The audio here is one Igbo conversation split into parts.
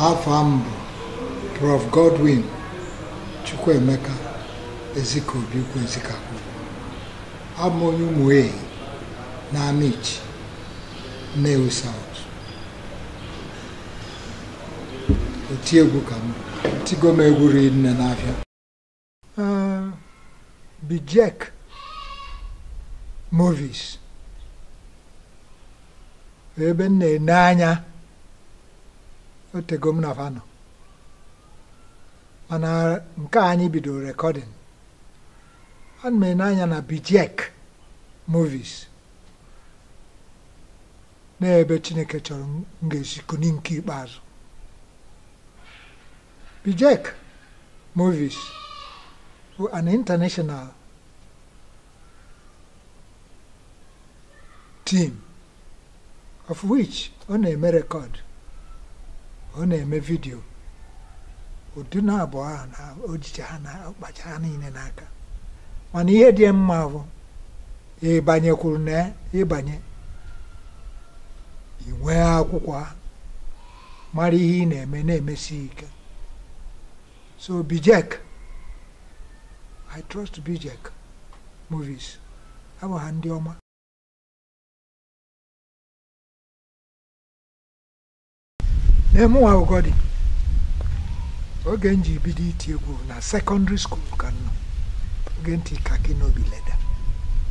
afọ m bụ Prof Godwin Chukwuemeka Ezikobi Ukwuezikakwu abụ onye ụmụei na Amichi Nnewi South otiegwu ka m tigo m egwu rinne n'afịa Bijek movis ebe m na-ene anya otego m mana nke anyị bidoro rekọdịn anụ m anya na bijek movies n'ebe chineke chọrọ m ga-esi kuni nke ikpeazụ bijek movies bụ an international team of which ọ na-eme rekọdụ ọ na-eme vidio ụdị na abụọ ahụ na ojije ha na ọkpacha ha niile n'aka mana ihe dị mma bụ ịbanyekwuru na ịbanye inwe akwụkwọ ha mara ihe ị na-eme na-emesi ike so bijek I trust bijek movies abụ ha ndị ọma na-emụnwa akwụkwọ dị oge m ji bido iti egwu na sekọndịrị skul ka nọ oge ntị kaki n'obi leda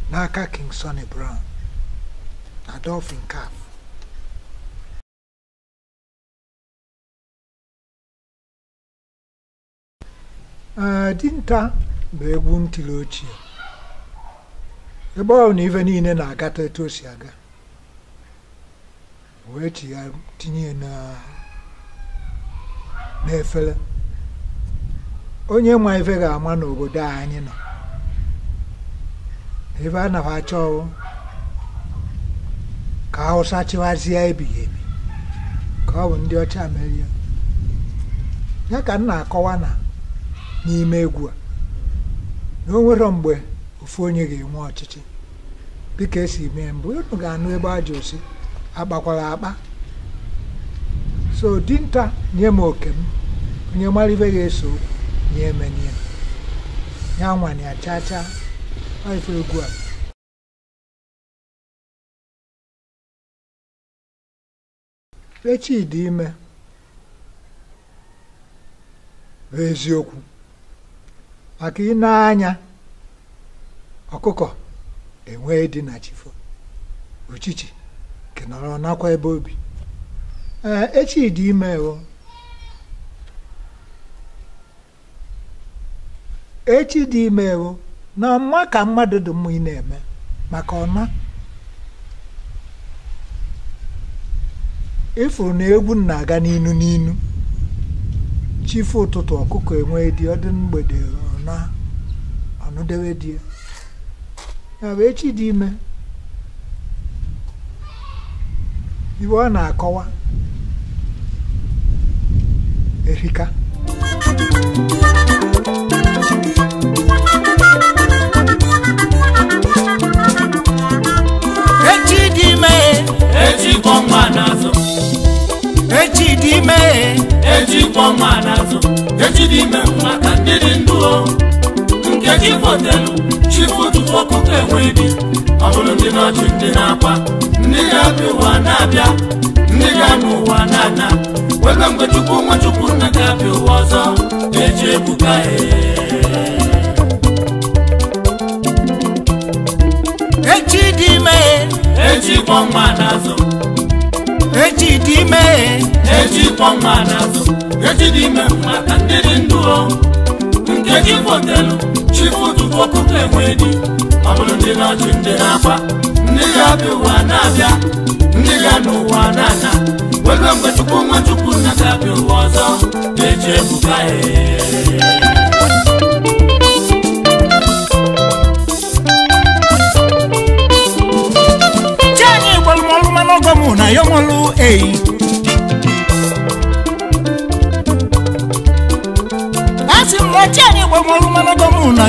n'aka King Sonny Brown na Dolphin Caf dinta bụ egwu ntuli ochie ebe ọ na ife niile na-agata etu o si aga wee tinye na na onye nwa ife ga-ama n'obodo a anyị nọ ebe a nafa achọ ọwụ ka Hausa chịwazie ebighị ebi ka ọ bụ ndị ọcha merie ya ka m na-akọwa na n'ime egwu a na o mgbe ofu onye ga-enwe ọchịchị dịka esi mee mbụ unu ga-anụ ebe a ji osi akpakwara akpa so dinta nye m oke m onye mara ga-eso nye emenye ya nwanyị achacha ife egwu a echi dị ime bụ eziokwu maka ị anya ọkụkọ enwee dị na chifo uchichi kenọrọ nakwa ebe obi Eh, echi dị ime o echi dị ime o na ọma ka mmadụ dị mma ị na-eme maka ọma ịfụrụ na egwu na-aga n'inu n'inu chifu ụtụtụ ọkụkọ enwee dị ọdị mgbede ọna ọnụdewe dị echi dị ime iwe ọ na-akọwa erika echi dị ime echi kwọ nwa n'azụ echi dị ime echi kwọ nwa n'azụ echi dị ime maka ndị dị ndụ nke chi fotelu chifu tupu ọkụkọ enwe ibi ọ bụrụ ndị n'ọchị ndị na-akwa ndị ga-abịa na-abịa ndị ga-anụ na-ana kangwe tukumwa tukuna kapiwoza ecebukae ecidime ecikwamwanazo ecidime ecikwamwanazo ecidime mwakandelinduo nke gị fotelu chifutufokuka enwedi ọ bụrụ ndị na-achụ ndị na ndị ga-abịa ụwa na-abịa ndị ga n'ụwa na-ana webe mgbe chukwu nwa chukwu na ga-abịa ụwa ọzọ na-eji ebuka Chani gbọlụmọlụ na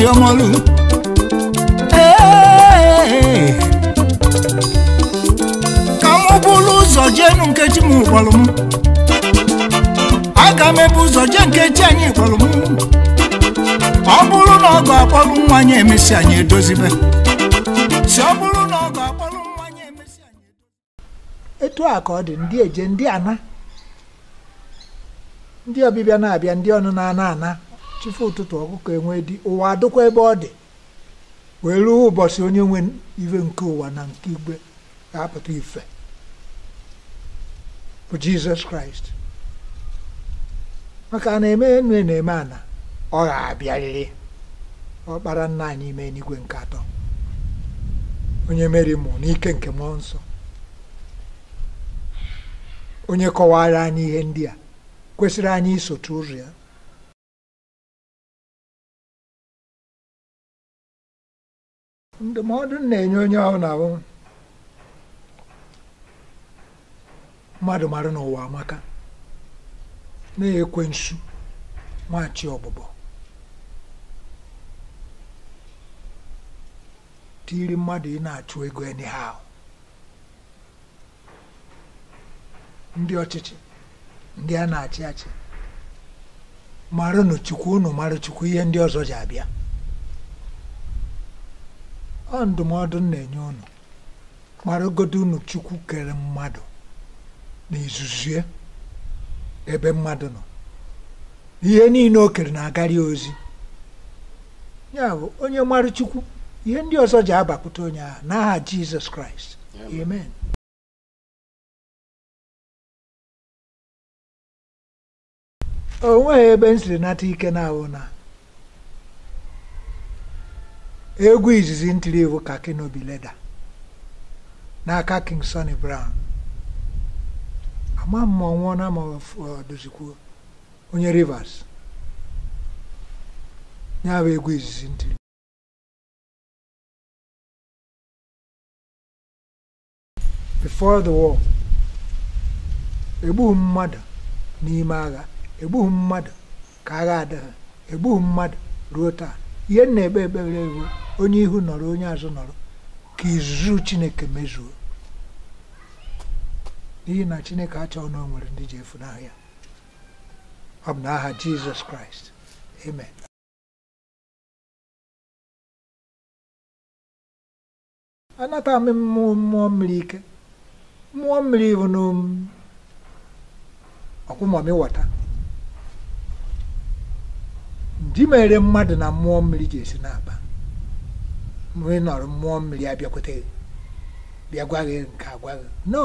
Ayọ̀mọ́lú. ka m ụzọ jee nu nkechi m gwalụ m aga m ebu ụzọ jee nkechi anyị gwalụ m ọ bụrụ na ọ ga-akpọrụ nwa anyị emesi anyị edozibe bụrụ na ọ ga nwa anyị emesi anyị etu a ka ọ dị ndị eje ndị ana ndị ọbịbịa na-abịa ndị ọnụ na-ana ana chifu ụtụtụ ọkụkọ enwe dị ụwa adịkwa ebe ọ dị wee ruo ụbọchị onye nwe iwe nke ụwa na nke igwe ga-apụta ife bụ jizọs kraịst maka na eme enu na-eme ana ọ ga-abịarịrị ọkpara nna anyị ime n'igwe nke atọ onye mere mụ n'ike nke mmụọ nsọ onye kọwara anyị ihe ndị a kwesịrị anyị isotu ụzọ ya ndụmọdụ m na-enye onye ahụ na-ahụ mmadụ mara n'ụwa amaka na-ekwe nsu nwachi ọbụbọ tiri mmadụ ị na-achụ ego anyhow ndị ọchịchị ndị a na-achị achị nụ chukwu unu marụ chukwu ihe ndị ọzọ ji abịa ọ ndụmọdụ na-enye unu maragodo unu chukwu kere mmadụ na ezuzie ebe mmadụ nọ ihe niile o kere na-agarị ozi ya bụ onye mara chukwu ihe ndị ọzọ ji abapụta onye ahụ n'aha jizọs kraịst amen o nweghị ebe m siri nata ike na ahụ na egwu izizi ntiri ewu ka kinobi Leda n'aka King Sunny Brown ama m ma ọ nwụọna ma dozikwuo onye Rivers ya bụ egwu izizi ntiri before the war egbughị mmadụ n'ime agha egbughị mmadụ ka agha adịghị egbughị mmadụ ruo taa ihe na-ebe ekpere ewu onye ihu nọrọ onye azụ nọrọ ka izuzu chineke mezuo n'ihi na chineke achọghị na o nwere ndị ji n'ahịa ya ọ bụ n'aha jizọs kraịst amen anata m mmụọ mmiri ike mmụọ mmiri bụ n'ọkwụmọmị wọta di mere mmadụ na mmụọ mmiri ji esi n'aba mmiri nọrọ mmụọ mmiri abịakwute bịa gwa gị nke agwa gị no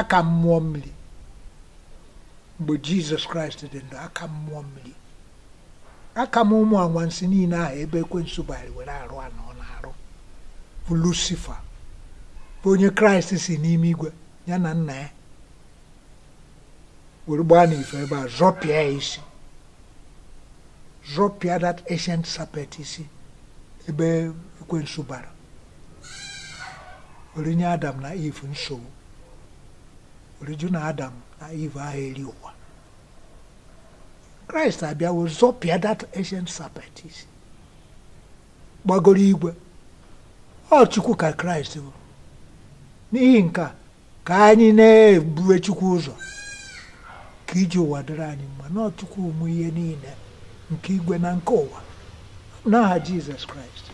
aka mmụọ mmiri mgbe jizọs kraịst dị ndụ aka mmụọ mmiri aka m ụmụ anwansi niile ahụ ebe ekwensu bari were arụ anọ na-arụ bụ lusifa bụ onye kraịst si n'ime igwe ya na nna ya were gbaa n'ife ebe a zọpịa ya isi zọpịa that ancient serpent ebe ekwensu bara orinye adam na eve nsogbu oriju na adam na eve ahụ eri ụwa kraịst abịawo zọpịa dat ancient serpent isi gbagoro igwe ọ chukwu ka kraịst bụ n'ihi nke ka anyị na-ebuwe chukwu ụzọ ka iji ụwa dịrị anyị mma na ụmụ ihe niile nke igwe na nke ụwa n'aha Jizọs Kraịst